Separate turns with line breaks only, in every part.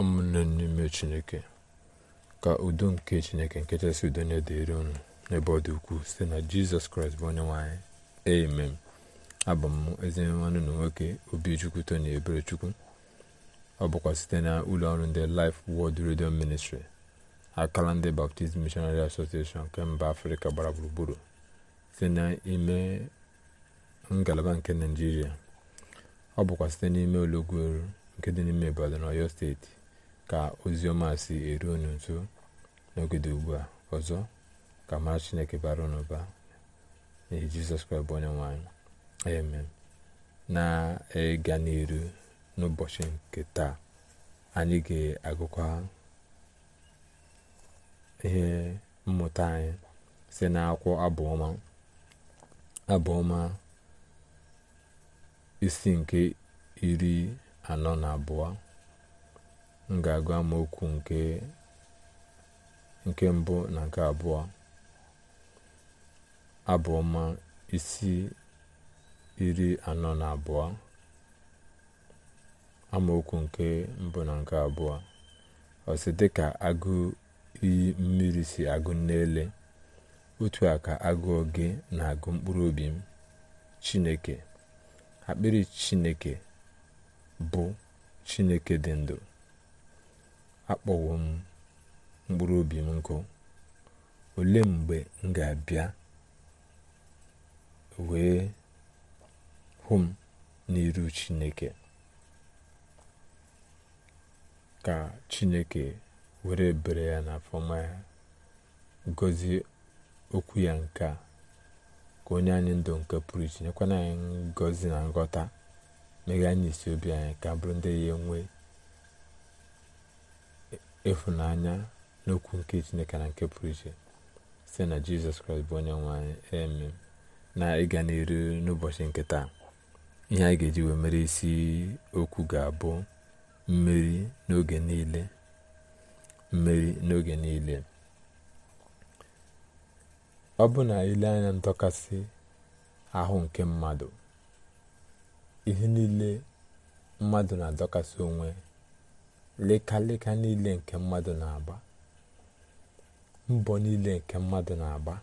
ụmụnne n'ime chineke ka udo nke chineke nkechasị udo nye dịrị unu n'ebe ọ dị ukwuu site na jizọs kraịst bụ onye nwanyị amen abụ m eze nwanne na nwoke obichukwu tony eberechukwu ọ bụkwa site na ụlọ ọrụ ndị Life Word redio ministri akala ndị Baptist Missionary Association nke mba afrịka gbara gburugburu site n'ime ngalaba nke naijiria ọ bụkwa site n'ime olọgwueru nke dị n'ime ibadan oyo steeti ka ọma si eru unu nso n'ogede ugbu a ọzọ ka mara chineke bara unu ụba n'ihi jizọs kraịst bụ onye nwanyị amen na-ịga n'iru n'ụbọchị nke taa anyị ga-agụkwa ihe mmụta anyị si n'akwụkwọ abụọma abụọma isi nke iri anọ na abụọ m ga-agụ amaokwu nke mbụ na nke abụọ abụọma isi iri anọ na abụọ amaokwu nke mbụ na nke abụọ ọsị dịka agụ iyi mmiri si agụ n'ele otu a ka agụụ gị na-agụ mkpụrụ obi m chineke akpịrị chineke bụ chineke dị ndụ akpọwo m mkpụrụ obi m nkụ olee mgbe m ga-abịa wee hụ m n'iru chineke ka chineke were bere ya na fọma ya okwu ya nke ka onye anyị ndụ nke pụrụ iche nyekwana anyị ngọzi na nghọta meghe isi obi anyị ka bụrụ ndị ya enwee ịfụnanya n'okwu nke chineke na nke pụrụ iche site na jizọs kraịst bụ onye nwe eme na ịga n'iru n'ụbọchị nke taa ihe a ga-eji wee mere isi okwu ga-abụ mmeri n'oge niile mmeri n'oge niile ọ bụ na ile anya ndọkasị ahụ nke mmadụ ihe niile mmadụ na-adọkasị onwe leka niile nke mmadụ na-agba mbọ niile nke mmadụ na-agba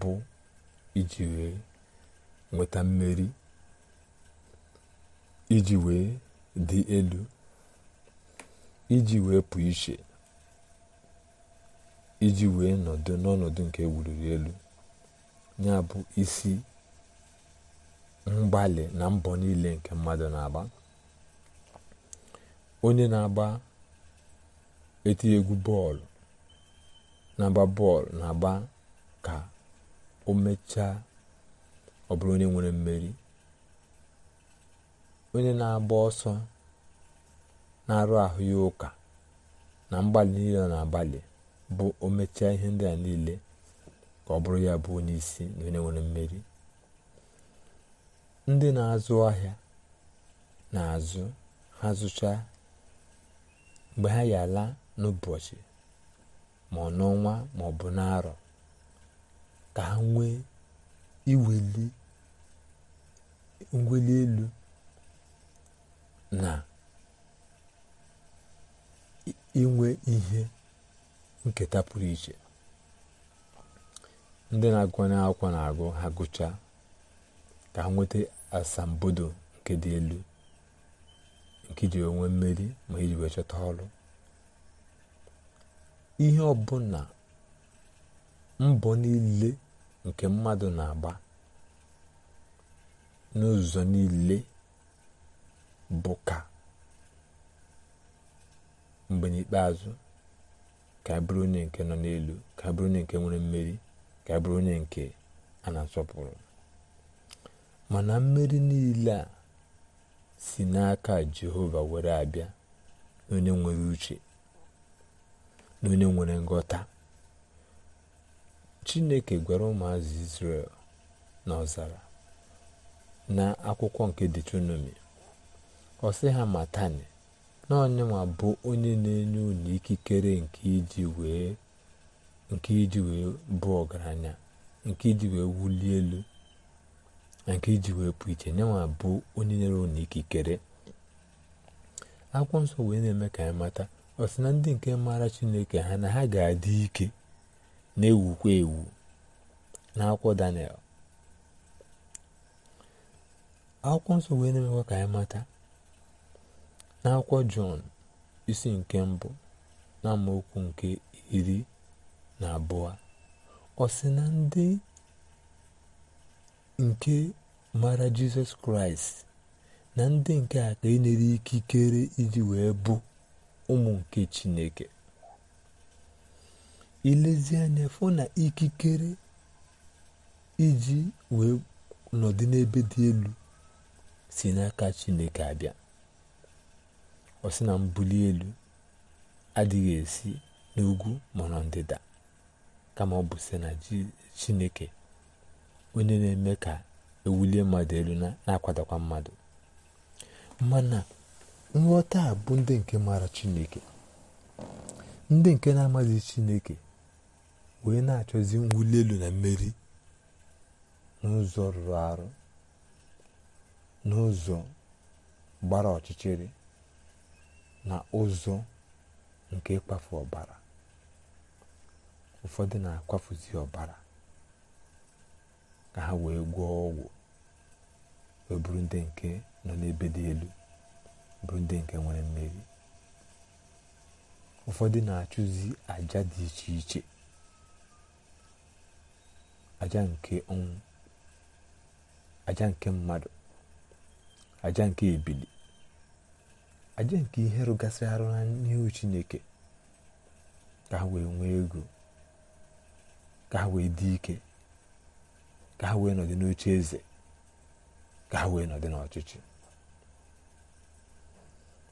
bụ iji wee nweta mmeri iji wee dị elu iji wee pụ iche iji wee nọdụ n'ọnọdụ nke ewuriri elu ya bụ isi mgbalị na mbọ niile nke mmadụ na aba onye na-agba eti egwu bọọlụ na-agba bọọlụ na-agba ka o mechaa ọ bụrụ onye nwere mmeri onye na-agba ọsọ na-arụ ahụ ya ụka na mgbalị niile na-agbalị bụ o mechaa ihe ndị a niile ka ọ bụrụ ya bụ onye isi na onye nwere mmeri ndị na-azụ ahịa na-azụ ha zụchaa mgbe ha ya n'ụbọchị ma ọ n'ọnwa ma ọ bụ n'arọ ka ha nwee iweli ngweli elu na inwe ihe nketa pụrụ iche ndị na-agụnye akwụkwọ na-agụ ha gụchaa ka ha nweta asambodo nke dị elu nke iji onwe mmeri ma iji wee chọta ọrụ ihe ọbụla mbọ niile nke mmadụ na-agba n'ụzọ niile bụ ka mgbe n'ikpeazụ ka anyị onye nke nọ n'elu ka anyị onye nke nwere mmeri ka anyị onye nke a na-asọpụrụ mana mmeri niile a si n'aka jehova were abịa na onye nwere uche na onye nwere nghọta chineke gwara ụmụazụ israel n'ọzara na akwụkwọ nke detronomi ọ sị ha matani na onyenwa bụ onye na-enye unu ikikere nke iji wee bụ ọgaranya nke iji wee wulie elu nke iji wee pụ iche nye nwa bụ onye nyere unu ikikere akwụkwọ nsọ wee na-eme ka anyị mata ọsị na ndị nke maara chineke ha na ha ga-adị ike na-ewukwa ewu n'akwụkwọ daniel akwụkwọ nsọ wee na-emekwa ka anyị mata n'akwụkwọ jọn isi nke mbụ na amaokwu nke iri na abụọ ọ na ndị nke mara jizọs kraịst na ndị nke a ka enyere ikikere iji wee bụ ụmụ nke chineke ilezi anya fụ na ikikere iji wee nọdụ n'ebe dị elu si n'aka chineke abịa ọ sị na mbuli elu adịghị esi n'ugwu ma ndịda kama ọ bụ si na chineke onye na-eme ka ewulie mmadụ elu na-akwadakwa mmadụ mana nghọta a bụ ndị nke maara chineke ndị nke na amazi chineke wee na-achọzi mwuli elu na mmeri n'ụzọ rụrụ arụ n'ụzọ gbara ọchịchịrị na ụzọ nke ịkwafu ọbara ụfọdụ na-akwafuzi ọbara ka ha wee gwọọ ọgwụ wee bụrụ ndị nke nọ n'ebe dị elu bụrụ ndị nke nwere mmeri ụfọdụ na-achụzi aja dị iche iche aja nke ọnwụ aja nke mmadụ aja nke ebili aja nke ihe rụgasị arụ n'ihu chineke ka ha wee nwee ego ka ha wee dị ike ka ha wee nọdị n'oche eze ka ha wee nọdị n'ọchịchị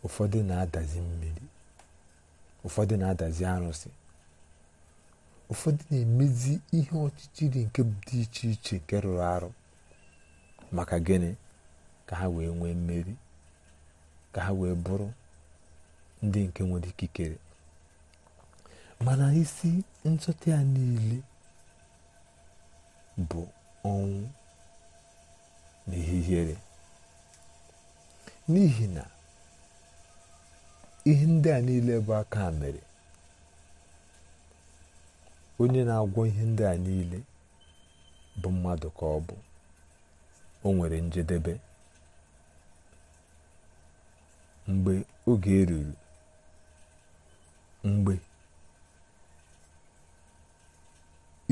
ụfọdụ na-adazi mmiri ụfọdụ na-adazi arụsị ụfọdụ na-emezi ihe ọchịchịrị nke dị iche iche nke rụrụ arụ maka gịnị ka ha wee nwee mmeri ka ha wee bụrụ ndị nke nwere ikikere mana isi nchọta ya niile bụ ọnwụ na ihihere n'ihi na ihe ndị a niile bụ aka mere onye na-agwọ ihe ndị a niile bụ mmadụ ka ọ bụ o nwere njedebe mgbe oge eruru mgbe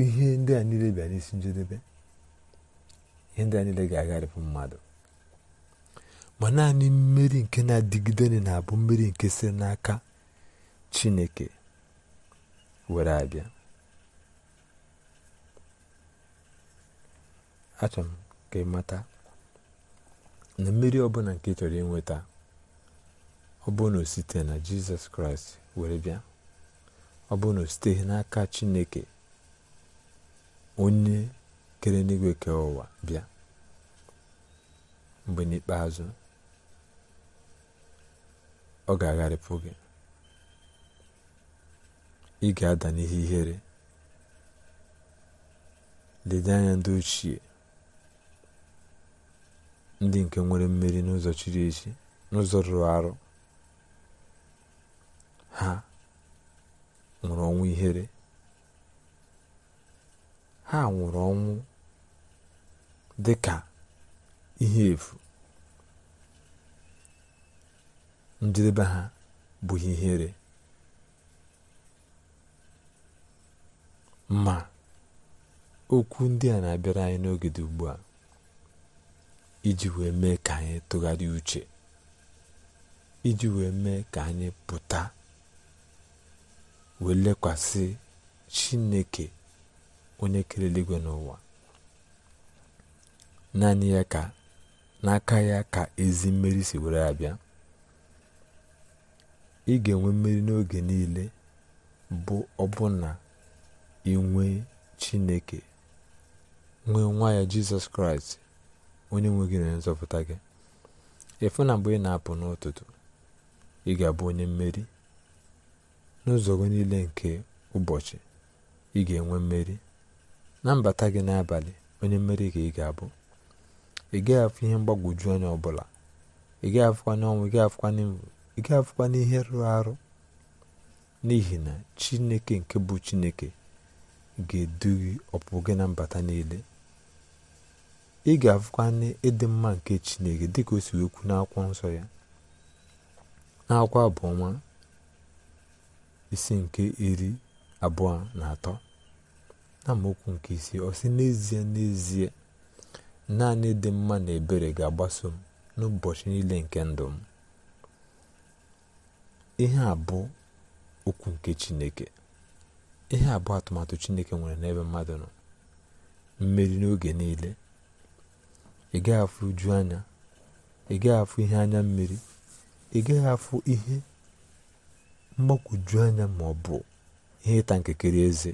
ihe ndị a niile bịa isi njedebe ihe ndị a ga-agharịpụ mmadụ ma naanị mmeri nke na-adịgide na-abụ mmeri nke si n'aka chineke were abịa achọrọ m ka ịmata na mmeri ọbụla nke ị chọrọ inweta ọ bụ na site na jizọs kraịst were bịa ọ bụ na siteghị n'aka chineke onye kere n'igwe ka ụwa bịa mgbe n'ikpeazụ ọ ga-agharịpụ gị ị ga-ada n'ihe ihere lede anya ndị ochie ndị nke nwere mmeri n'ụzọ chiri echi n'ụzọ rụrụ arụ ha nwụrụ ọnwa ihere ha nwụrụ ọnwụ dị ka ihe efu njedebe ha bụ ihere ma okwu ndị a na-abịara anyị n'oge dị ugbu a iji wee mee ka anyị tụgharịa uche iji wee mee ka anyị pụta wee lekwasị Chineke onye kere eluigwe n'ụwa naanị ya ka n'aka ya ka ezi mmeri si were abịa ị ga-enwe mmeri n'oge niile bụ ọbụna inwe chineke nwee nwa ya jizọs kraịst onye nwe gị na nzọpụta gị efu na mgbe ị na-apụ n'ụtụtụ ị ga-abụ onye mmeri n'ụzọ gị niile nke ụbọchị ị ga-enwe mmeri na mbata gị n'abalị onye mmeri ka ị ga-abụ ị gaghị afụ ihe mgbagwoju anya ọbụla ị gaghị afụkwana ọnwụ ị gaghị afụkwana ị gaghị afụkwana ihe rụrụ arụ n'ihi na chineke nke bụ chineke ga-edughị ọpụ gị na mbata niile ị ga-afụkwana ịdị mma nke chineke dịka o si ekwu n'akwụkwọ nsọ ya n'akwụkwọ ọnwa isi nke iri abụọ na atọ na amaokwu nke isii ọ sị n'ezie n'ezie naanị dị mma na ebere ga-agbaso m n'ụbọchị niile nke ndụ m ihe a bụ okwu nke chineke ihe a bụ atụmatụ chineke nwere n'ebe mmadụ nọ mmeri n'oge niile ị gaghị uju anya ị gaghị afụ ihe anya mmiri ị gaghị afụ ihe anya ma ọ bụ ihe ịta nkekere eze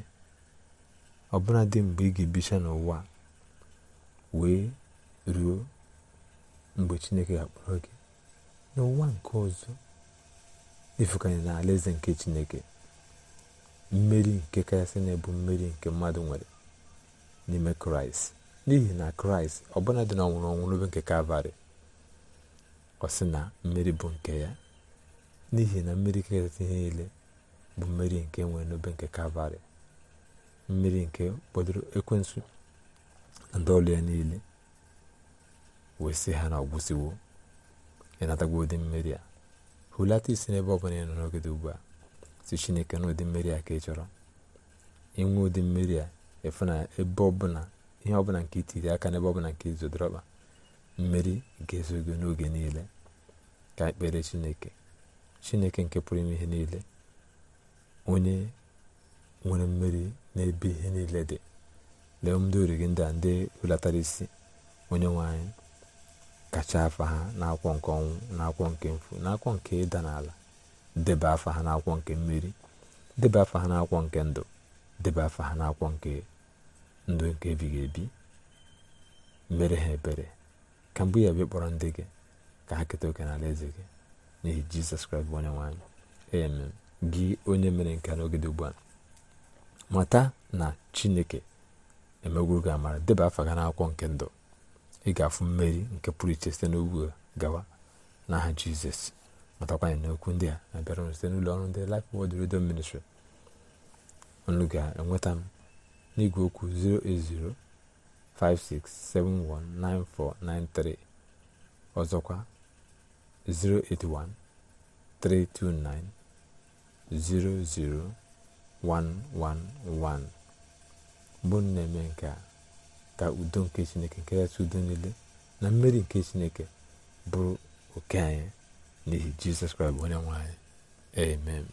dị mgbe ị ga-ebicha n'ụwa wee ruo mgbe chineke ga-akpọrọ gị n'ụwa nke ọzọ ifukanye na alaeze nke chineke mmeri nke kachasị na ebu mmeri nke mmadụ nwere n'ime kraịst n'ihi na kraịst ọbụla dị na ọnwụrụ ọnwụ n'obe nke kalvarị ọ sị na mmeri bụ nke ya n'ihi na mmeri kachasị ihe niile bụ mmeri nke nwere n'obe nke kalvarị mmiri nke kpọdoro ekwensu na ndị ya niile wee sị ha na ọgwụsiwo ịnatagwa ụdị mmeri a hulata isi n'ebe ọ bụla ị nọ n'oge dị ugbu a si chineke na ụdị mmiri a ka ị chọrọ inwe ụdị mmeri a efu na ebe ọbụla ihe ọbụla nke itiri aka n'ebe ọbụla nke izodorọkpa mmeri ga-ezo gị n'oge niile ka ekpere chineke chineke nke pụrụ ime ihe niile onye nwere mmeri n'ebe ihe niile dị lee ndị ori gị ndị a ndị hulatara isi onye nwanyị kacha afa ha n'akwọ nke ọnwụ n'akwọ nke mfu n'akwọ nke ịda n'ala debe afa ha n'akwọ nke mmeri debe afa ha n'akwọ nke ndụ debe afa ha n'akwọ nke ndụ nke ebighị ebi mere ha ebere ka mgbe ya bịa kpọrọ ndị gị ka ha keta oke n'ala eze gị n'ihi jizọs kraịst bụ onye nwe anyị gị onye mere nke n'oge dị ugbu a mata na chineke emegwuru gị amara deba afa gị n'akwụkwọ nke ndụ ị ga-afụ mmeri nke pụrụ iche site n'ugwu gawa n'aha jizọs na n'okwu ndị a na-abịara site n'ụlọ ọrụ ndị Life Word Radio Ministry unu ga-enweta m n'igwe okwu 08056719493 ọzọkwa 081 329 111 bụ na-eme nke a ka udo nke chineke nke kachasị udo niile na mmeri nke chineke bụrụ oke anyị n'ihi jizọs kraịst onye nwanyị amen